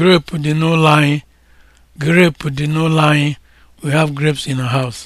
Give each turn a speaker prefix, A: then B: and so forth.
A: grape dị n'ụlọ anyị grape dị n'ụlọ anyị we have grapes in our house